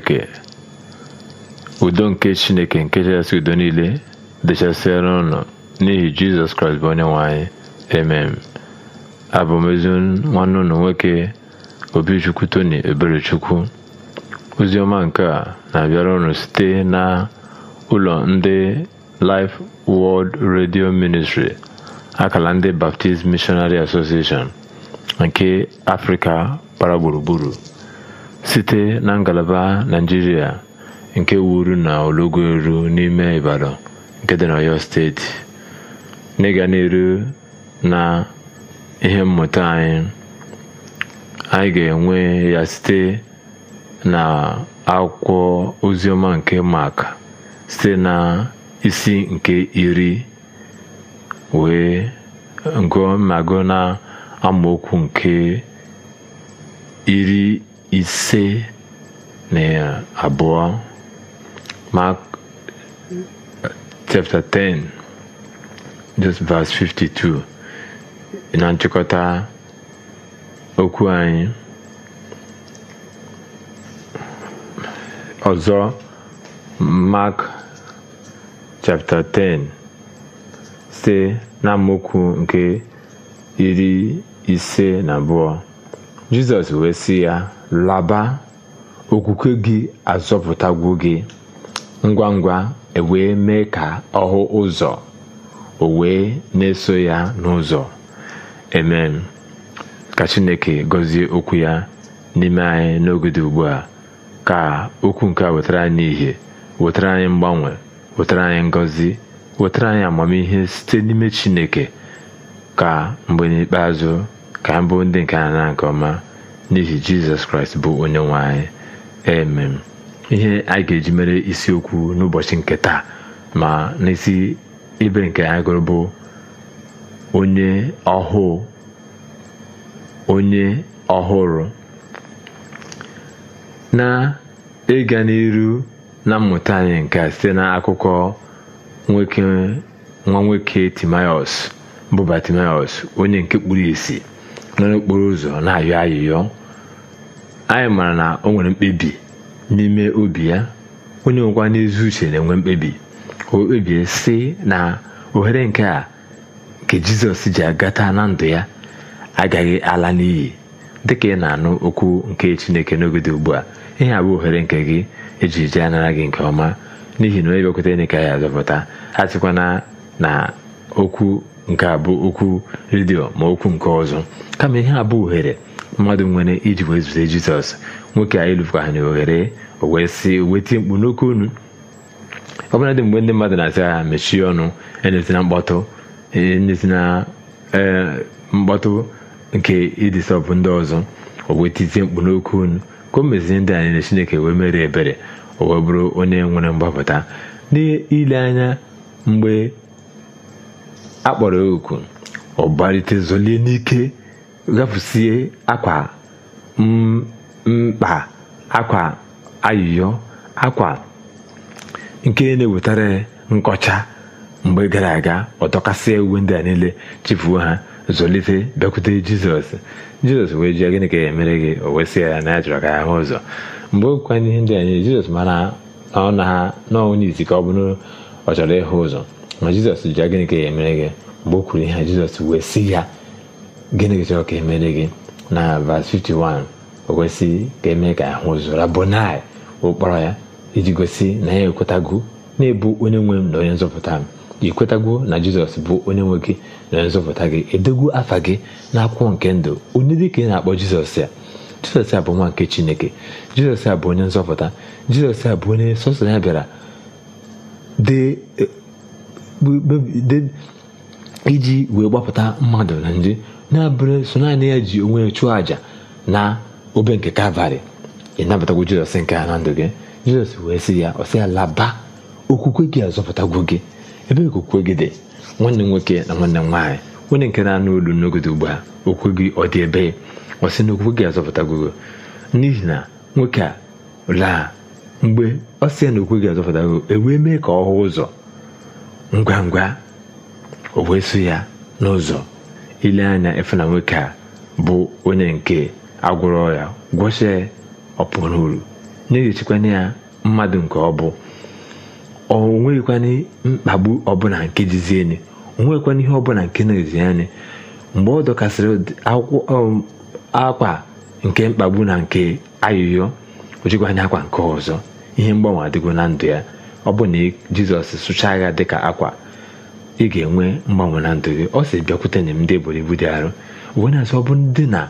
chineke udo nke chineke nke chasị udo niile dechasịara ụnụ n'ihi jizọs kraịst bụ onye nwe emem abụ m ezi nwanne ụnụ nwoke obichukwu tony eberechukwu ọma nke a na-abịara ụnụ site na ụlọ ndị Life World Radio Ministry akala ndị Baptist Missionary Association nke Afrịka gbara gburugburu site na ngalaba naijiria nke wuru na Ologoru n'ime Ibadan nke dị Oyo Steeti, n'ịga n'elu na ihe mmụta anyị, anyị ga-enwe ya site na akwụkwọ Oziọma nke Mak site na isi nke iri wee gụọ mago na amaokwu nke iri ise na abụọ Mark chapter 10 just verse 52 na nchịkọta okwu anyị ọzọ Mark chapter 10 na amaokwu nke iri ise na abụọ jizọs wee sị ya laba okwukwe gị azọpụtagwu gị ngwa ngwa ewee mee ka ọ hụ ụzọ o wee na-eso ya n'ụzọ amen ka chineke gọzie okwu ya n'ime anyị n'oge dị ugbu a ka okwu nke a wetara anyị ihe wetara anyị mgbanwe wetara anyị ngọzi wetara anyị amamihe site n'ime chineke ka mgbe n'ikpeazụ ka mbụ ndị nke a na nke ọma n'ihi jizọs kraịst bụ onye nwe anyị emem ihe a ga-eji mere isiokwu n'ụbọchị nke taa ma n'isi ibe nke anyị gụrụ bụ onye ọhụụ onye ọhụrụ na-ịga n'iru na mmụta anyị nke a site akụkọ nwa nwoke timaos bụ Batimiọs onye nke kpuru esi nọ n'okporo ụzọ na-ayọ ayịyọ anyị mara na o nwere mkpebi n'ime obi ya onye nwekwa n'ezi uche na-enwe mkpebi o kpebie sị na ohere nke a nke jizọs ji agata na ndụ ya agaghị ala n'iyi dịka ị na-anụ okwu nke chineke n'oge dị ugbu a ihe a bụ ohere nke gị eji ji anara gị nke ọma n'ihi na onye bịakwute enye ka ya azọpụta a na okwu nke a bụ okwu redio ma okwu nke ọzọ kama ihe a bụ ohere mmadụ nwere iji wee zute jizọs nwoke a ịlụfụkahana ohere o wee sị wetie mkpu n'oke unu ọbụla dị mgbe ndị mmadụ na-asị ha mechie ọnụ enyezina mkpọtụ enyezina e, mkpọtụ nke ịdịsọbụ ndị ọzọ o wee tizie mkpu n'oke unu ka o mezie ndị anyị na chineke wee mere ebere owee wee bụrụ onye nwere mgbapụta n'ile anya mgbe akpọrọ ya oku ọ zolie n'ike gafusie akwa mkpa akwa ayịyọ akwa nke na-ewetara nkọcha mgbe gara aga ọ uwe ndị a niile chifuo ha zụlite bịakwute jizọs jizọs wee jụọ gịnị ka ya e gị o wesịa ya na ya chọrọ ka ya hụ ụzọ mgbe okwukwa ihe ndị anyị jizọs mara na ọnụ ha na onye ka ọ bụrụ ọ chọrọ ịhụ ụzọ ma jizọs ji ya gịnị ka emere gị mgbe o kwuru ihe jizọs wee sị ya gịnị chọrọ ka emere gị na vas 51 o kwesịghị ka emee ka ahụ zụra bonai ụkpọrọ ya iji gosi na ya ekwetago na-ebu onye nwe m na onye nzọpụta m i na jizọs bụ onye nwe gị na onye nzọpụta gị edogwu afa gị na akwụkwọ nke ndụ onye dị ka ị na-akpọ jizọs ya jizọs a bụ nwa nke chineke jizọs a bụ onye nzọpụta jizọs a bụ onye sọsọ ya bịara dị. iji wee gbapụta mmadụ na nje na-abụrụ so naanị ya ji onwe ya chụọ àjà na obe nke kalvarị ị nabatagwo jizọs nke a na ndụ gị jizọs wee sị ya ọ sị ya laba okwukwe gị azọpụtagwo gị ebe okwukwe gị dị nwanne nwoke na nwanne nwaanyị onye nke na-anụ olu n'ogode ugbu a okwukwe gị ọ dị ebe ọ sị na okwukwe gị azọpụtagwo gị n'ihi na nwoke a laa mgbe ọ sị ya na okwukwe gị azọpụtagwo e wee mee ka ọ hụ ụzọ ngwa ngwa o wee ya n'ụzọ ile anya efena nwoke a bụ onye nke agwụrọ ya gwọchie ọpụrụ uru na-ehichikwana ya mmadụ nke ọ bụ o nweghịkwana mkpagbu ọbụla nke jizieni o nweghịkwana ihe ọbụla nke na-ezi mgbe ọ dọkasịrị um, akwa nke mkpagbu na nke ayụyọ o akwa nke ọzọ ihe mgbanwe adịgo na ndụ ya ọ bụ na jizọs sụchaa agha dịka akwa ị ga-enwe mgbanwe na ndụ gị ọ si bịakwute nye m ndị eboro ibu dị arụ uwe na-asị ọ bụ ndị na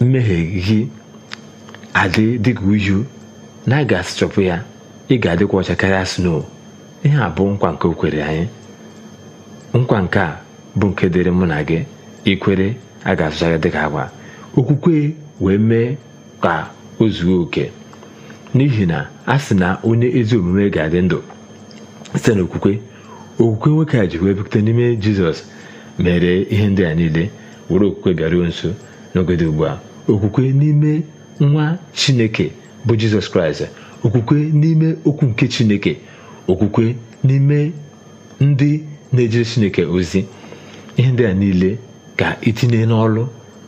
mmehie gị adị dịka uju na a ga ya ị ga-adịkwa ọcha karịa snow ihe a bụ nkwa nke o kwere anyị nkwa nke a bụ nke dịrị mụ na gị ikwere a ga-asụcha gị dịka agwa okwukwe wee mee ka o zuo oke n'ihi na a sị na onye ezi omume ga-adị ndụ site n'okwukwe okwukwe nwoke a ji wee n'ime jizọs mere ihe ndị a niile were okwukwe bịaruo nso n'oge ugbu a okwukwe n'ime nwa chineke bụ jizọs kraịst okwukwe n'ime okwu nke chineke okwukwe n'ime ndị na-ejere chineke ozi ihe ndị a niile ka itinye n'ọlụ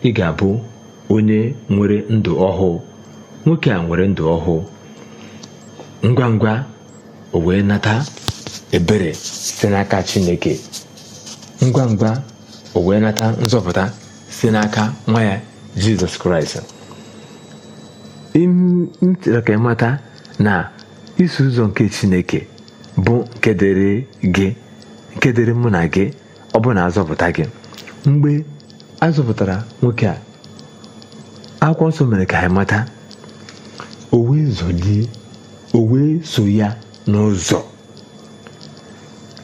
ị ga-abụ onye nwere ndụ ọhụụ nwoke a nwere ndụ ọhụụ ngwa ngwa o wee nata ebere site n'aka chineke ngwa ngwa o wee nata nzọpụta site n'aka nwa ya jizọs kraịst Ntịrị ka ịmata na isi ụzọ nke chineke bụ nke dịrị gị nke dịrị mụ na gị ọ bụ na azọpụta gị mgbe azọpụtara nwoke a akwụkwọ nsọ mere ka anyị mata o wee zọlie o wee so ya n'ụzọ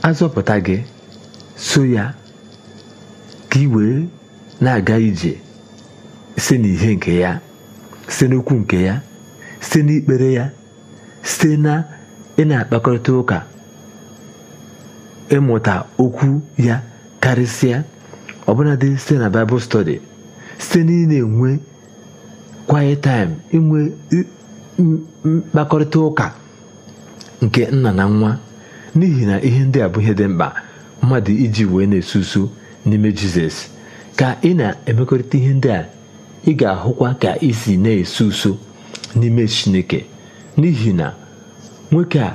azọpụta gị so ya ka ị wee na-aga ije site n'ihe nke ya site n'okwu nke ya site n'ikpere ya site na ị na-akpakọrịta ụka ịmụta okwu ya karịsịa ọbụnadị site na Bible study site na ị na-enwe quiet mkpakọrịta ụka nke nna na nwa n'ihi na ihe ndị a bụ ihe dị mkpa mmadụ iji wee na-eso n'ime jizọs ka ị na-emekọrịta ihe ndị a ị ga-ahụkwa ka isi na-eso uso n'ime chineke n'ihi na nwoke a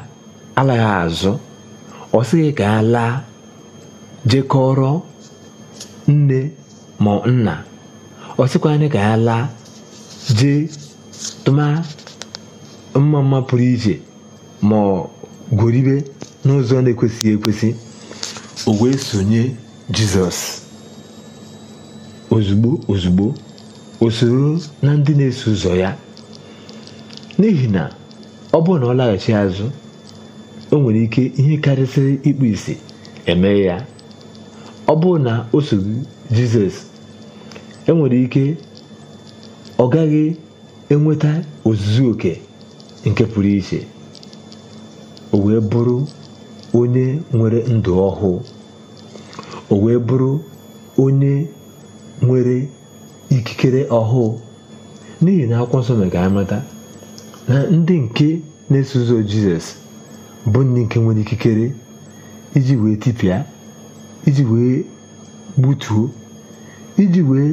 alaghị azụ ọ ka ya laa jekọrọ nne ma nna ọ sịkwa anyị ka ya laa jee tụma mma mma pụrụ iche ma ọ gworibe n'ụzọ na-ekwesịghị ekwesị o wee sonye jizọs ozugbo ozugbo o soro na ndị na-eso ụzọ ya n'ihi na ọ bụrụ na ọ laghachi azụ o nwere ike ihe karịsịrị ịkpụ isi eme ya ọ bụrụ na o so jizọs e nwere ike ọ gaghị enweta ozuzu oke nke pụrụ iche o wee bụrụ onye nwere ndụ ọhụụ o wee bụrụ onye nwere ikikere ọhụụ n'ihi na akwụkwọ nsọ amata na ndị nke na-eso ụzọ jizọs bụ ndị nke nwere ikikere iji wee tipịa iji wee gbutuo iji wee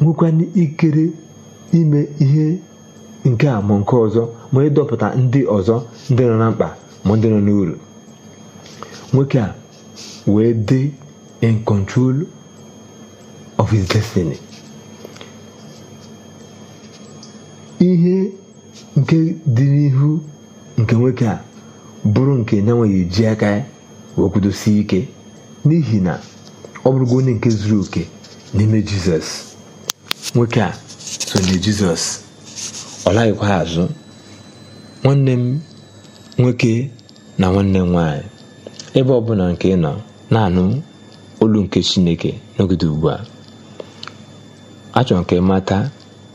nwekwara ikikere ime ihe nke a ma nke ọzọ ma ịdọpụta ndị ọzọ ndị nọ na mkpa ma ndị nọ n'uru nwoke a wee dị in control of his destiny ihe nke dị n'ihu nke nwoke a bụrụ nke na nweghị eji aka ya wee ike n'ihi na ọ bụrụgo onye nke zuru oke n'ime jisọs nwoke a so na jizọs ọ laghịkwa azụ nwanne m nwoke na nwanne m ebe ọbụla nke nọ na-anụ olu nke chineke n'ogide ugbu a achọrọ nke mata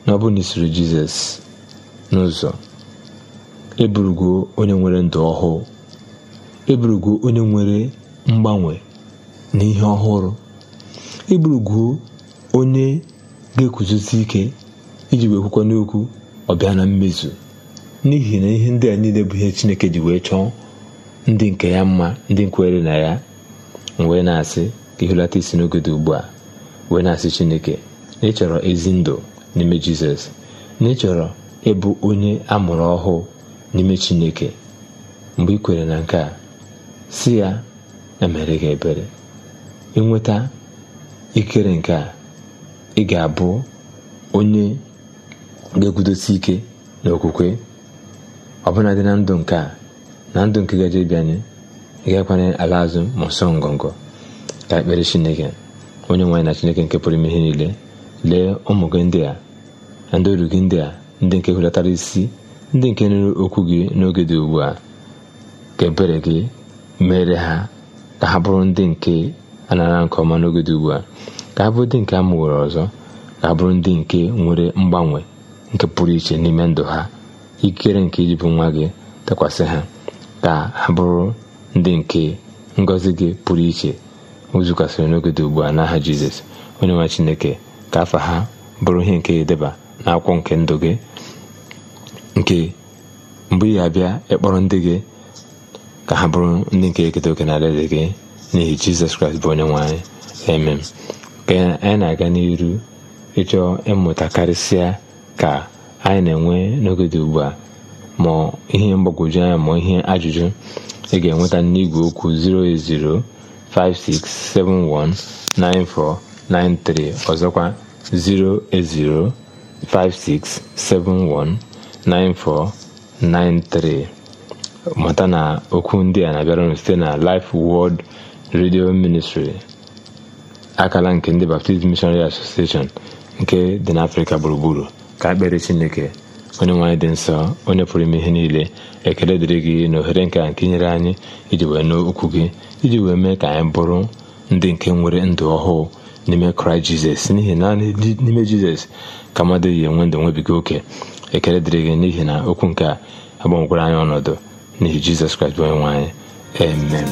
na ọ bụ na jizọs n'ụzọ eburugo onye nwere ndụ ọhụụ eburugo onye nwere mgbanwe na ihe ọhụrụ eburugo onye ga-eguzosi ike iji wee kwukwa n'okwu ọ bịa na mmezu n'ihi na ihe ndị a niile bụ ihe chineke ji wee chọọ ndị nke ya mma ndị nkwere na ya wee na-asị ka isi n'oge ugbu a wee na-asị chineke na ịchọrọ ezi ndụ n'ime jizọs na chọrọ ịbụ onye a mụrụ ọhụụ n'ime chineke mgbe ị kwere na nke a si ya emere gị ebere ịnweta ikere nke a ị ga-abụ onye ga egwudosi ike na okwukwe ọbụla dị na ndụ nke a na ndụ nke gaje ga-ekwanye ala azụ ma ọsọ ngọngọ ka ekpere chineke onye nwaanyị na chineke nke pụrụ ime ihe niile lee ụmụ gị ndị a na ndị oru gị ndị a ndị nke hulatara isi ndị nke nụrụ okwu gị n'oge dị ugbu a ka ebere gị mere ha ka ha bụrụ ndị nke anara nke ọma n'oge dị ugbu a ka ha bụrụ ndị nke a ọzọ ka ha bụrụ ndị nke nwere mgbanwe nke pụrụ iche n'ime ndụ ha ikere nke bụ nwa gị tekwasị ha ka ha bụrụ ndị nke ngọzi gị pụrụ iche ozukwasịrị n'oge dị ugbu a n'aha jizọs onye nwa chineke ka afa ha bụrụ ihe nke edeba akwụkwọ nke ndụ gị nke mgbe ị ga-abịa ịkpọrọ ndị gị ka ha bụrụ ndị nke eketa oke na alaeze gị n'ihi jizọs kraịst bụ onye nwanyị emem ka anyị na-aga n'iru ịchọ ịmụta karịsịa ka anyị na-enwe n'oge dị ugbu a ma ihe mgbagwoju anya ma ihe ajụjụ ị ga-enweta n'igwe okwu 08056719493 ọzọkwa 3. mata na okwu ndị a na abịarụnụ site na Life world Radio Ministry akala nke ndị Baptist Missionary Association nke dị n'Africa gburugburu ka akpere chineke onye nwaanyị dị nsọ onye pụrụ ime ihe niile ekele dịrị gị na ohere nke a nke nyere anyị iji wee nụ okwu gị iji wee mee ka anyị bụrụ ndị nke nwere ndụ ọhụụ n'ime kraịst jizọs n'ihi na n'ime jizọs ka mmadụ yi enwe ndụ nwebiga oke ekele dịrị gị n'ihi na okwu nke a agbanwekwara anyị ọnọdụ n'ihi jizọs kraịst onye nwaanyị amen